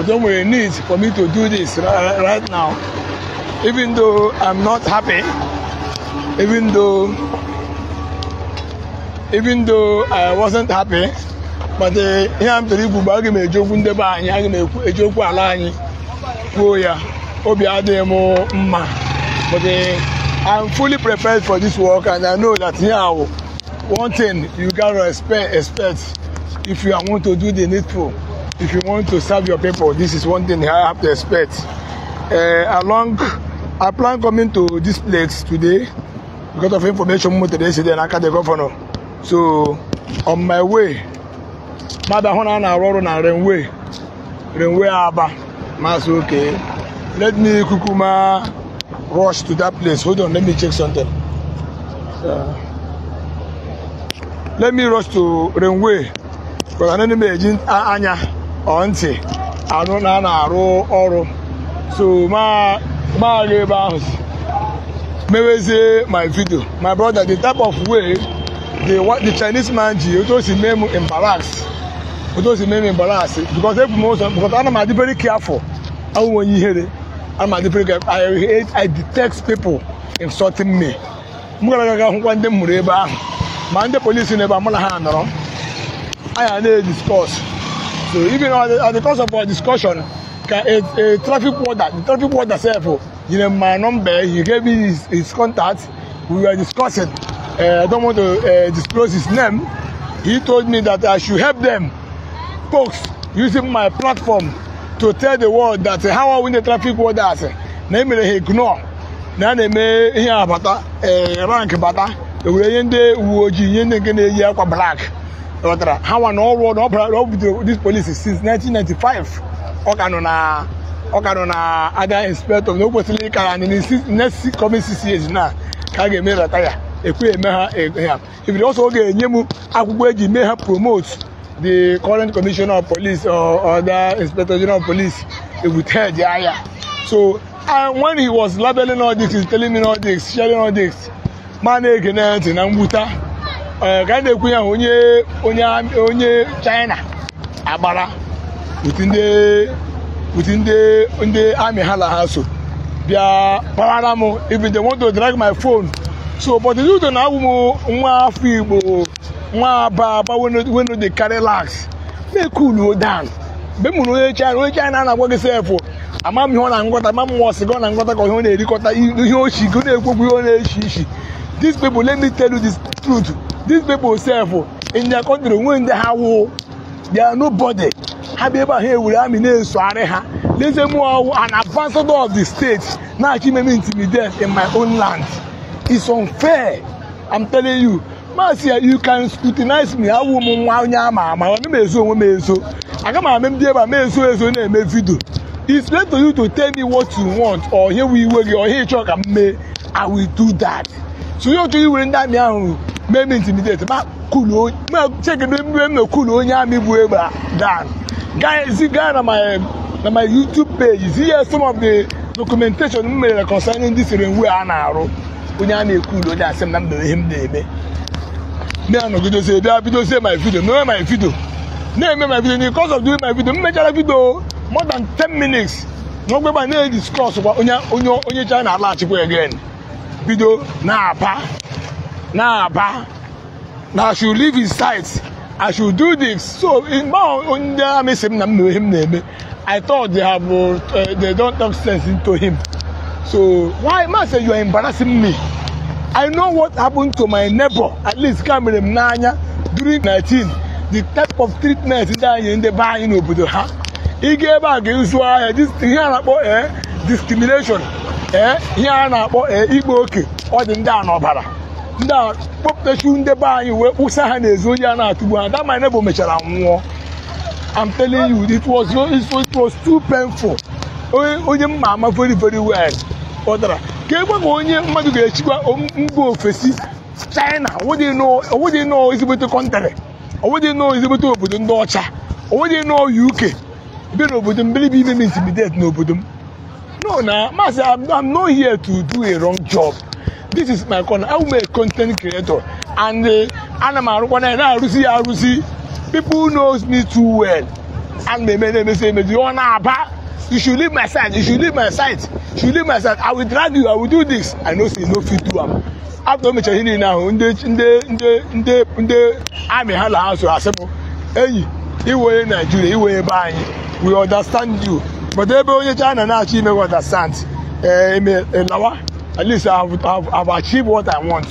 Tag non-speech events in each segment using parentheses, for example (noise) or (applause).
but don't worry, need for me to do this right, right now. Even though I'm not happy, even though even though I wasn't happy, but ihe m tụrụ ikwu bụ aga m ejiokwu ndebe anyị aga m ejiokwu ala anyị kwuo ya obi adịghị mma but eh, I'm fully prepared for this work and I know that here oh, one thing you gotta respect, respect, if you want to do the needful if you want to serve your people this is one thing I have to expect uh, along i plan coming to this place today because of information mo today say na aka the governor so on my way mother, ahụ na a na-arụ ọrụ aba maasị oke let me kukuma rush to that place hold on let me check something uh, let me rush to renway because anani m eji anya ọ ntị anụ na a na-arụ ọrụ so maghị ebe ahụ si mewezie my video my brother the type of way the, the chinese man ji otu o si mee m embarrass otu o si mee m embarrass because ebu m ụzọ because ana m adị very careful awụ onye ihere ana m adị very careful I, detect people insulting me m gara aga hụkwa ndị m mụrụ ebe ahụ ma ndị polisi n'ebe a mụ na ha nọrọ anyị na-ediskọs so even at the, at the course of our discussion ka a a traffic warder the traffic warder sef o oh, you know my number he gave me his his contact we were discussing uh, i don't want to uh, disclose his name he told me that i should help them folks using my platform to tell the world that uh, how i win the traffic warders na emere ha ignore na a na-eme ihe abata rank bata ewere ihe ndị uwe ojii ihe ndị nke na-eyi akwa black ghọtara ha nwa na ọrụ na ọ bidoro dis polisi since 1995 ọ ka nọ na ọ ka nọ na ada inspector na o kwesịrị ịka n'isi next coming na ka a ga-eme retire ekwe eme ha e, e, ha ibiri ọsọ oge enye m akwụkwọ eji mee ha promote the current commissioner of police or other inspector general of police e with head aya so and when he was labeling all this telling me na-ege Eh, ka a na-ekwu ya onye onye onye China agbara uti ndị amị ha na ha so bịa kpawara m even they want to drag my phone so but udo na-awụ m nwa afọ igbo nwa aba aba wenu dey carry lax na-ekulu down mgbe m hụrụ onye China onye China na-agwa gị sefụ ama m ihe ọ na-angọta ama m nwa ọsị gị ọ na-angọta ka ihe ọ na-erikọta ihe ochi gị na-ekwekwu ihe ọ na-echi ichi these people let me tell you this truth these people self oh, in their country when they have war they are nobody ha bịa ebe ahụ ewere amị na arị ha leze m ọwụ an ambassador of the state na-achọ ime m intimidate in my own land is unfair I'm telling you maasị you can scrutinize me awụ m nwa onye ama ama ọ m ezo onwe m ezo aga m ame m dị ebe a m ezo ezo na-eme vidio it's late to you to tell me what you want or ihe iwe gị or ihe ịchọ ka m mee I will do that so onye otu iwere ndị amị ahụ mee m intimidate ma kuluo ma chekedo onye amị bụ egbe dan guys gaa na my na my youtube page ihe some of the documentation m mere concerning ndị siri a na-arụ onye a na-ekulu onye asị na mbere ihe m na-eme na-anọgidozie bịa bidozie my video mee my video na-eme my video because of doing my video m mechara video more than 10 minutes na ogbegba na-ediscuss kwa onye onye China alaghachikwa again bido na-apa na ba, na I should leave his sight I should do this so now ndị amị sị m na m na him na-eme I thought they have uh, they don't talk sense into him so why ma, say you are embarrassing me I know what happened to my neighbor at least kamere m n'anya during nineteen. the type of treatment ndị anyị ndị be anyị n'obodo ha ị ga ebe a ga-ezu ahịa ihe a na-akpọ ee discrimination ee ihe a na-akpọ ee ikpe oke ọ dị ndị a n'ọbara ndị kpọpụtachu ndị be anyị wee kpụsa ha n'ezi onye a na-atụgbu ha that na neighbor mechara nwụọ I'm telling you it was it was too painful onye mma ama very very well ọ ka egwe ka onye mmadụ ga-echikwa mba ofesi China onwedị nọọ ezigbote kọntrị onwedị nọọ ezigbote obodo ndị ọcha onwedị nọọ UK bịa n'obodo m believe ime m n'obodo m no na maazị I'm not here to do a wrong job this is my corner I'm a content creator and uh, ana m arụkwa na na arụsi ya arụzi people knows me too well and meme na say emezi ọ na-aba you should leave my side you should leave my side you should leave my side I will drag you I will do this I know say you no fit do am after o mechara ihe niile ahụ ndị ndị ndị ndị ndị amị ha na ha so asịpụ enyi iwere Naijiria iwere ebe anyị we understand you but ebe onye China na-achọ ime we understand ee eh, eme eh, lawa at least I've, I've, I've achieved what I want.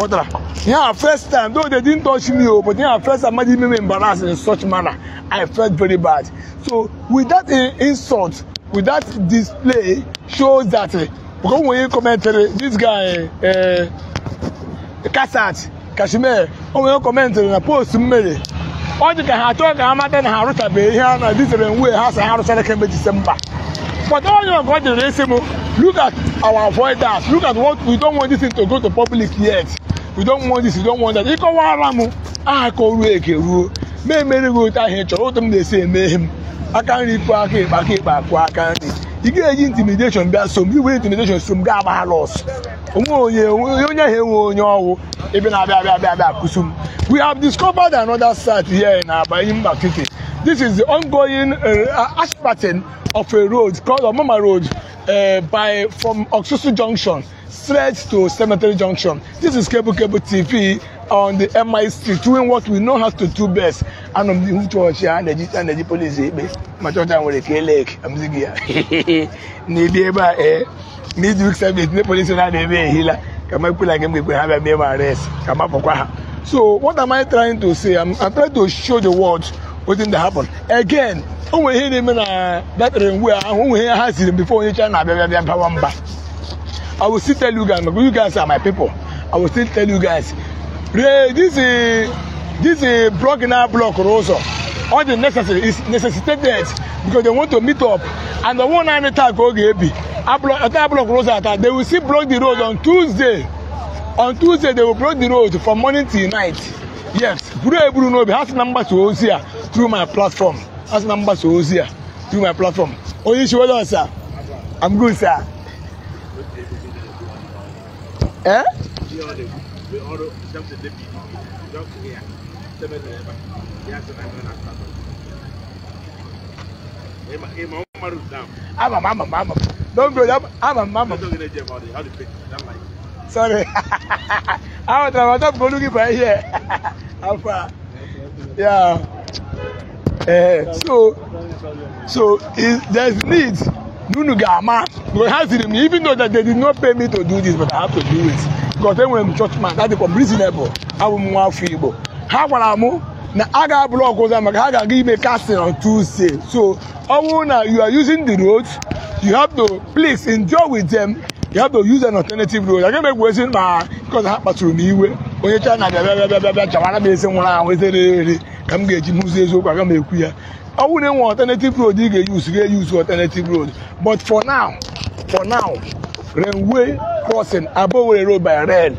Otra. Yeah, first time, though they didn't touch me, oh, but yeah, first time, made me embarrassed in such manner. I felt very bad. So, with that uh, insult, with that display, shows that, uh, because when you comment, uh, eh, this guy, uh, eh, Kassat, Kashmir, when you commented on a post, Mary, ọ dị ka ha chọọ ka ha mata na ha arụchabeghị ihe a na-adịtere nwe ha si ha arụchara kemgbe Disemba But all of God the racism, look at our avoidance. Look at what we don't want this to go to public yet. We don't want this, we don't want that. Ịkọwa ara m aha ka ruo eke ruo ma emere gị ahụ ị chọrọ otu m na-esi eme ihe m aka nri aka ịkpa aka ịkpa aka nri ị ga-eji intimidation bịa som gị were intimidation som gị agba onwe onye onye ahụ onye ọwụ ebe na-abịa abịa abịa abịa we have discovered another site here in mba City This is the ongoing uh, uh asphalting of a road called Omama Road uh, by from Oxusu Junction straight to Cemetery Junction. This is Cable Cable TV on the MI Street doing what we know how to do best. And I'm the church and the and the police. Eh, My church and with a K leg. I'm the gear. Need a eh. (laughs) eh. midweek service. The police and the way healer. Come up like him. We have me mere arrest. Come up for So what am I trying to say? I'm, I'm trying to show the world within the happen again o nwere ihe uh, na-eme na batara ngwe ahụ nwere ihe ha siri before onye china abịa bịa bawa mba i will still tell you guys you guys are my people i will still tell you guys this is this is block na block ụzọ all the necessary is necessitated because they want to meet up and the one naanị taa ka ọ ga-ebi ata block ụzọ ata they will still block the road on tuesday on tuesday they will block the road from morning till night yes buru eburu n'obi ha si na mgbasa ozi a through my platform asị na mgbasa ozi a through my platform onye isi wele ọsa i'm good sir. Eh? ama m ama m ama m don't go that ama m ama m sorry i was looking for here alpha yeah. ee so so there's need nunu ga-ama because ha ziri m even though that they did not pay me to do this but I have to do it because enwere m churchman that dịkwa m reasonable abụ m nwa afọ Igbo ha gwara m na a ga-abụrụ ọgụ ụzọ maka ha ga-aga ime casting on Tuesday so ọ na you are using the road you have to please enjoy with them you have to use an alternative road agaghị m egwu ezi ma because ha kpatụrụ m iwe onye China bịa bịa bịa bịa bịa chawara m ezi nwụrụ anwụ n'eri. ka m ga-eji hụzi eziokwu aga m ekwu ya ọ bụrụ na enwe alternative road ị ga-eyuzu ga-eyuzu alternative road but for now for now railway crossing abowere road by rail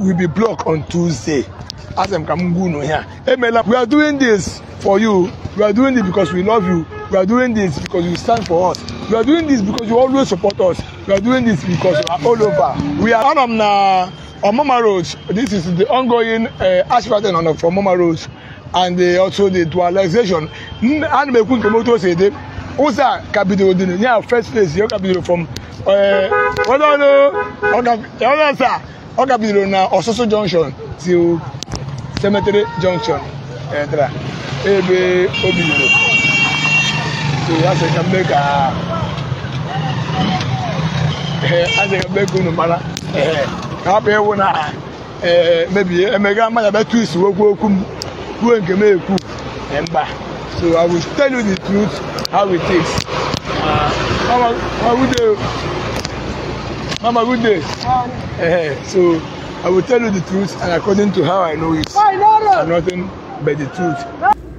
will be blocked on tuesday As m ka m gwa unu ya emela we are doing this for you we are doing this because we love you we are doing this because you stand for us we are doing this because you always support us we are doing this because you are all over we are anọ m na on Mama Road, this is the ongoing uh, asphalting on from Mama Road and the, uh, also the dualization. And we could come to say that Osa capital dinner, yeah, first place, your capital from uh, what I know, sir, or capital now, Ososo Junction to Cemetery Junction. Ẹ̀dra ebe obìnrin so that's ka mbẹ́ ka ẹ̀ asẹ̀ ka mbẹ́ kunu mara ka na mebie emega mmanya bịatụ isi okwu okwu m kwuo nke m ekwu mba so i will tell you the truth how it is uh, mama good day mama good day eh, so i will tell you the truth and according to how i know it and nothing but the truth.